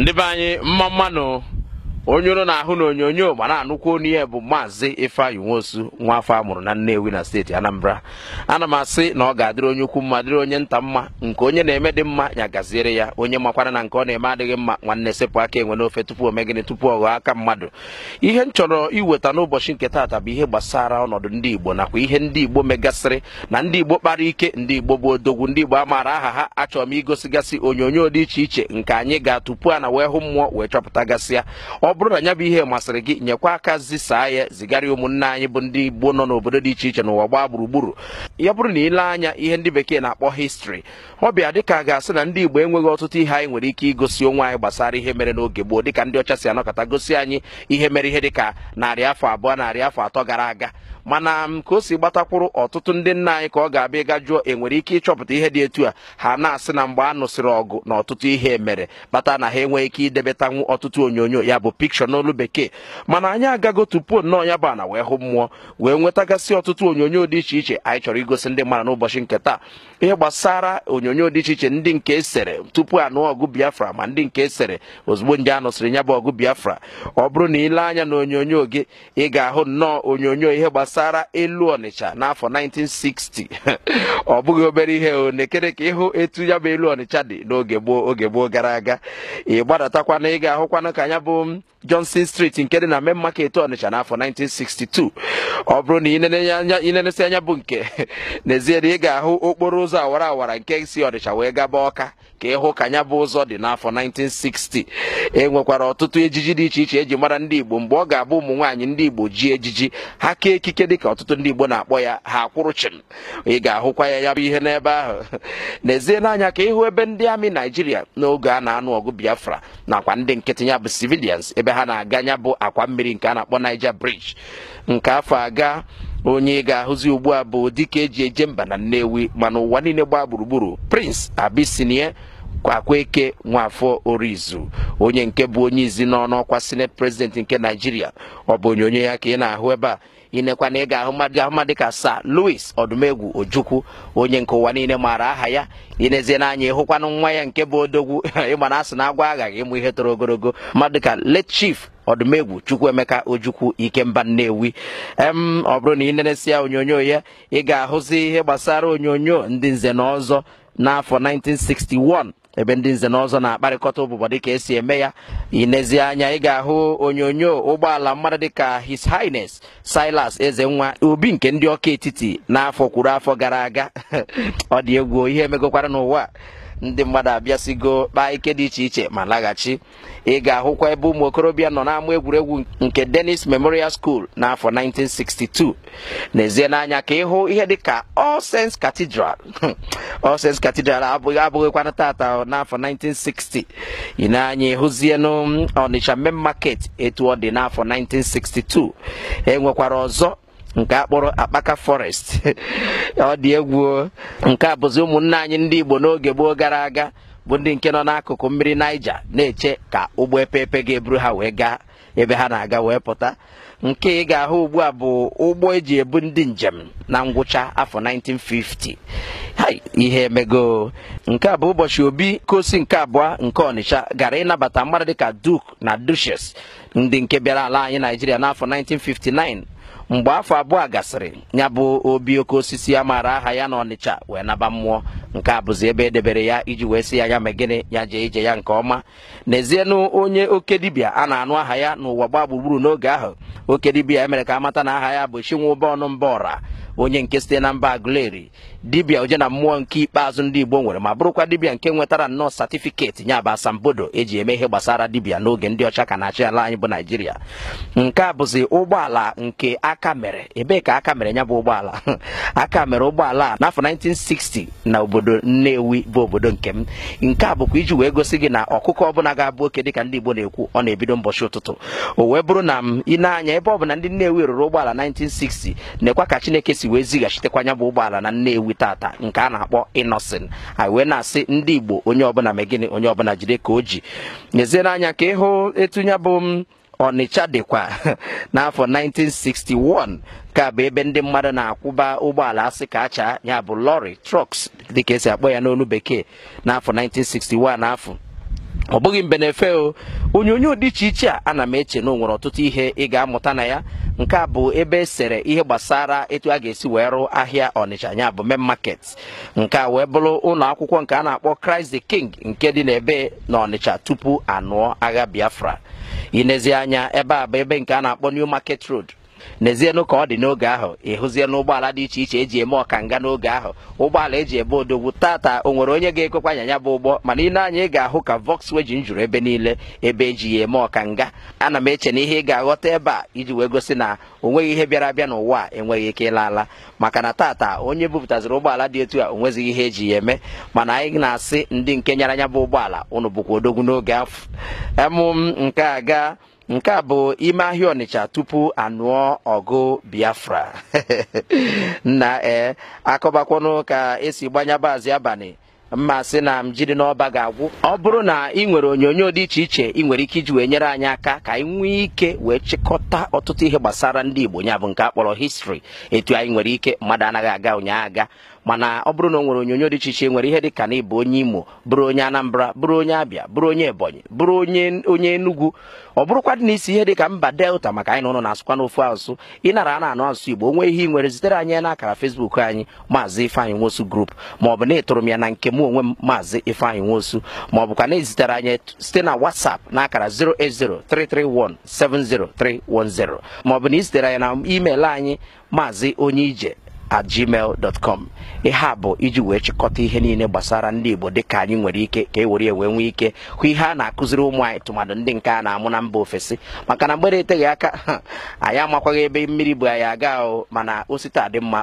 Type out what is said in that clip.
ndị be anyị mma mmanụ onye ụrụ na-ahụ na onyonyo mana anụkwu onye bụ maazị ifeanyị nwosu nwa afọ amụrụ na nnewi na steeti anambra ana m asị na ọ ga-adịrị onye ukwu mma dịrị onye nta mma nke onye na-eme dị mma ya gaziere ya onye makwara na nke ọ na-eme adịghị mma nwanne sepụ aka enwe n'ofe tupu omegịnị tupu ọ ghọọ aka mmadụ ihe m chọrọ iweta n'ụbọchị nke taata bụ ihe gbasara ọnọdụ ndị igbo nakwa ihe ndị igbo megasịrị na ndị igbo kpara ike ndị igbo bụ odogwu ndị igbo amaara aha ha achọrọ m igosigasị onyonyo dị iche iche nke anyị ga-atụpu a na wee hụ mmụọ wee chọpụtagasịa ọ ọ bụrụ na anya bụ ihe masịrị gị nyekwa aka zisaa ya zigara ụmụnne anyị bụ ndị igbo nọ n'obodo dị iche iche n'ụwa gbaa gburugburu ya bụrụ na ile anya ihe ndị bekee na-akpọ histri ọ bịa dịka ga-asị na ndị igbo enweghị ọtụtụ ihe anyị nwere ike igosi onwe anyị gbasara ihe mere n'oge gboo dịka ndị ọcha si anọkọta gosi anyị ihe mere ihe dịka narị afọ abụọ narị afọ atọ gara aga mana ka o si gbatakwuru ọtụtụ ndị nna anyị ka ọ ga-abịa ịga jụọ enwere ike ịchọpụta ihe dị etu a ha na-asị na mgbe a nụsịrị ọgụ na ọtụtụ ihe mere kpata na ha enweghị ike idebetanwu ọtụtụ onyonyo ya bụ pikshọ n'olu bekee mana anyị agago tupu nnọọ ya bụ ana wee hụ mmụọ wee nwetagasị ọtụtụ onyonyo dị iche iche anyị chọrọ igosi ndị mmadụ n'ụbọchị nke taa ihe gbasara onyonyo dị iche iche ndị nke esere tupu anụ ọgụ biafra ma ndị nke e sere ozugbo ndị a nụsịrị ya bụ ọgụ biafra ọ bụrụ na ile anya na onyonyo gị ị ga-ahụ nnọọ onyonyo ihe gbasara elu ọnịcha n'afọ 1960 ọ bụghị obere ihe o ka ịhụ etu ya bụ elu ọnịcha dị n'oge gboo oge gboo gara aga ị gbadatakwana ị ga-ahụkwana ka ya bụ johnson street nke dị na main market ọnịcha n'afọ 1962 ọ bụrụ na inenesị anya bụ nke n'ezie na ị ga-ahụ okporo ụzọ awara awara nke si ọnịcha wee gaba ọka ka ịhụ ka anya bụ ụzọ dị n'afọ 1960 e nwekwara ọtụtụ ejiji dị iche iche eji mara ndị igbo mgbe ọ ga-abụ ụmụ nwaanyị ndị igbo ji ejiji ha kee ekike dị ka ọtụtụ ndị igbo na-akpọ ya ha akwụrụ chim ị ga-ahụkwa ya ya bụ ihe n'ebe ahụ n'ezie n'anya ka ịhụ ebe ndị amị naijiria n'oge a na-anụ ọgụ biafra nakwa ndị nkịtị ya bụ sivilians ebe ha na-aga anya bụ akwa mmiri nke a na-akpọ Niger Bridge nke afọ aga onye ga-ahụzi ugbu a bụ dịka eji eje mba na Nnewi mana ụwa niile gbaa gburugburu Prince abisinie Akwaeke Nwafọ Orizu onye nke bụ onye izi n'ọnụ ọkwa senet President nke Naijiria ọ bụ onyonyo ya ka ị na-ahụ ebe a inekwa na ị ga-ahụ mmadụ ga-ahụ mmadụ dịka Sir luis Odumegwu Ojukwu onye nke ụwa niile maara aha ya inezie n'anya ịhụkwanụ nwa ya nke bụ odogwu ịgba na asị na agwa aghaghị ịmụ ihe toro ogologo mmadụ dịka let chief ọdụmegwu emeka ojukwu ikemba nnewi em ọ bụrụ na ị neresịa onyonyo ya ị ga-ahụzi ihe gbasara onyonyo ndị nze na ọzọ n'afọ 1961 ebe ndị nze n'ọzọ na-akparịkọta ụbụbọ dịka esi eme ya inezi anya ị ga-ahụ onyonyo ụgbọala mmadụ dịka his highness silas eze nwa obi nke ndị ọka etiti n'afọ kwuru afọ gara aga ọ dị egwu ihe emegokwara n'ụwa ndị mmadụ abịasigo kpaa ike dị iche iche ma laghachi ị ga-ahụkwa ebe ụmụ okorobịa nọ n'ámá egwuregwu nke denis Memorial School n'afọ 1962 n'ezie n'anya ka ịhụ ihe dịka All Saints Cathedral abụghị abụghịkwana tata n'afọ 1960 ị na-anya ịhụzienụ Main Market etu ọ dị n'afọ 1962 enwekwara ọzọ nke akpọrọ akpaka forest ọ dị egwu nke a bụzi ụmụnna anyị ndị igbo n'oge gboo gara aga bụ ndị nke nọ n'akụkụ mmiri naija na-eche ka ụgbọ epepe ga-eburu ha wee gaa ebe ha na-aga wee pụta nke ị ga-ahụ ugbu a bụ ụgbọ eji ebu ndị njem na ngwụcha afọ 1950 ihe emego nke a bụ ụbọchị obi kosi nke abụọ nke ọnịcha gara ịnabata mmadụ dịka duke na duches ndị nke bịara ala anyị naijiria n'afọ 1959 mgbe afọ abụọ gasịrị ya bụ obi oke osisi a maara aha ya na ọnịcha wee naba mmụọ nke a bụzi ebe edebere ya iji wee sị ya ya megịnị ya jee ije ya nke ọma n'ezienụ onye oke dibịa a na-anụ aha ya n'ụwa gbaa gburugburu n'oge ahụ oke dibịa emere ka amata na aha ya bụ chinwụba ọnụ mba ọra onye nke site na mba aguleri dibịa oje na mmụọ nke ikpeazụ ndị igbo nwere ma bụrụkwa dibịa nke nwetara nnọọ satifiketi ya bụ asambodo eji eme ihe gbasara dibịa n'oge ndị ọcha ka na-achị ala anyị bụ naijiria nke a bụzi ụgbọala nke aka mere ebee ka aka mere nya bụ ụgbọala aka mere ụgbọala a n'afọ 1960 na obodo Nnewi bụ obodo nke m nke a bụkwa iji wee gosi gị na ọkụkọ ọbụla ga-abụ oke dịka ndị Igbo na-ekwu ọ na-ebido mbọchị ụtụtụ o wee bụrụ na m ị anya ebe ọ bụ na ndị Nnewi rụrụ ụgbọala 1960 na-ekwa ka Chineke si wee zighachitekwa ya bụ ụgbọala na Nnewi tata nke a na-akpọ Innocent anyị wee na-asị ndị Igbo onye ọbụla megịnị onye ọbụla jide ka o ji n'ezie n'anya ka ịhụ etu ya bụ ọnịcha dịkwa n'afọ 1961 ka bụ ebe ndị mmadụ na-akwụba ụgbọala asị ka acha ya bụ lọri trucks dịka esi akpọ ya n'olu bekee n'afọ 1961 n'afọ ọ bụghị mbe na-efe o onyonyo dị iche iche a ana m eche na o ọtụtụ ihe ị ga-amụta na ya nke a bụ ebe esere ihe gbasara etu a ga-esi wee rụ ahịa ọnịcha ya bụ main market nke a wee bụrụ ụlọ akwụkwọ nke a na-akpọ Christ the King nke dị n'ebe na ọnịcha tupu anụọ agha Biafra inezi anya ebe a bụ ebe nke a na-akpọ New Market Road n'ezienụ ka ọ dị n'oge ahụ ịhụzie n'ụgbọala dị iche iche eji eme ọkanga n'oge ahụ ụgbọala eji ebe odogwu tata o nwere onye ga-ekwekwa ya bụ ụgbọ mana ị na-anya ị ga-ahụ ka vọks weji juru ebe niile ebe eji ya eme ọkanga ana m eche na ihe ị ga-aghọta ebe a iji wee gosi na o ihe bịara abịa n'ụwa a enweghị ike ịla ala maka na tata onye bupụtaziri ụgbọala dị etu a o nwezighị ihe eji ya eme mana anyị na-asị ndị nke nyaranya anya bụ ụgbọala ụnụ bụkwa odogwu n'oge afọ emụ m nke a gaa nke a bụ ime ahịa ọnịcha tupu anụọ ọgụ biafra na ee akọbakwanụ ka esi gbanyabazị abalị mma sị na m jiri n'ọba ga-agwụ ọ bụrụ na ị nwere onyonyo dị iche iche ị nwere ike iji wee nyere anyị aka ka anyị nwee ike wee chịkọta ọtụtụ ihe gbasara ndị igbo ya bụ nke a histri etu anyị nwere ike mmadụ anaghị aga ụnyaahụ aga mana ọ bụrụ na ọ nwere onyonyo dị iche iche nwere ihe dị ka na ịbụ onye imo bụrụ onye anambra bụrụ onye abịa bụrụ onye ebonyi bụrụ onye onye enugwu ọ bụrụkwa dị na isi ihe dị ka mba delta maka anyị na ụlọ na-asụkwa n'ofu asụsụ ịnara a na-anụ asụsụ igbo onwe ihe ị nwere zitere anyị na akara fesbuk anyị maazị ifeanyị nwosu grup ma ọ bụ na ịtụrụ m ya na nke m onwe m maazị ifeanyị nwosu ma ọ na ezitere anyị site na whatsapp na akara 08033170310 ma ọ bụ na izitere anyị na email anyị maazị onye ije at gmail.com ihe a bụ iji wee chịkọta ihe niile gbasara ndị Igbo ka anyị nwere ike ka e were ewe nwee ike hụ ihe a na-akụziri ụmụ anyị tụmadụ ndị nke a na-amụ na mba ofesi maka na mgbere eteghị aka anyị amakwaghị ebe mmiri bụ anyị aga ahụ mana osite adị mma